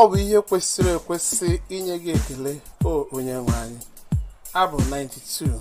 ọ bụ ihe kwesịrị ekwesị inye gị ekele o onye nwe anyị abụ 92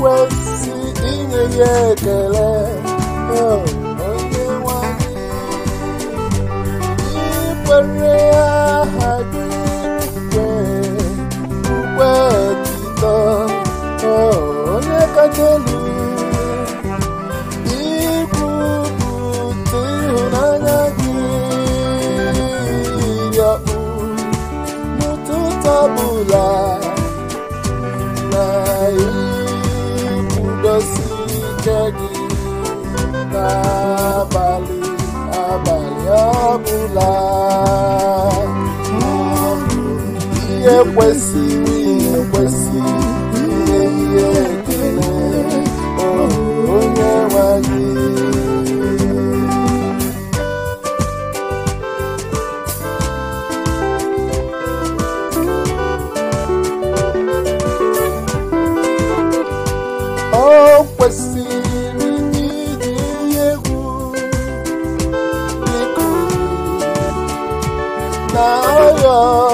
kwesị inye ya ekele Oh, nwanyị ikwere ya osije gị abalị ọbụla ihe kwesịrị kwesịrị iji ihe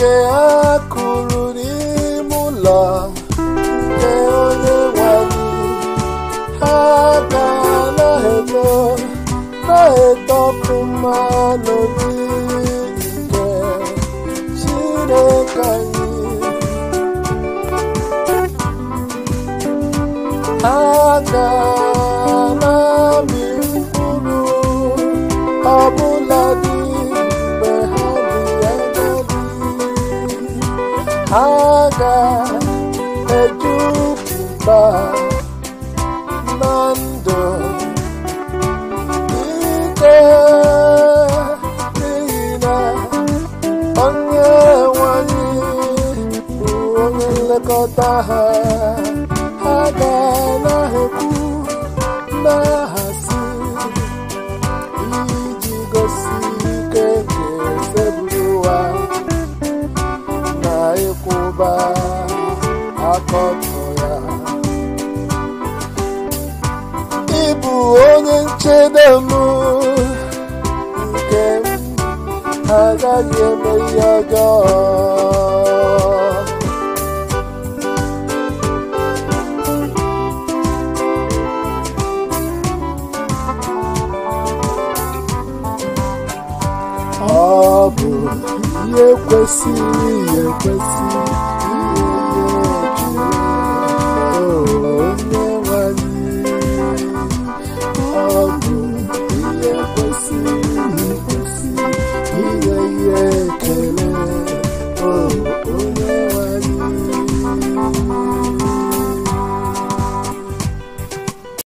nke a kụrụ n'ime ụlọ nke onye nwanyị ha ga na-eto na-etọpụ mmanụ dị nke Chineke anyị ha ga Fernando Ike n'ihi na onye nwanyị bụ onye nlekọta ha ha ga-anaghịkwu na-ahasi iji gosi ike nke ezeburu ụwa na ịkwụba akọta noche de amor que haga y me haga. ọ bụ ihe kwesịrị ihe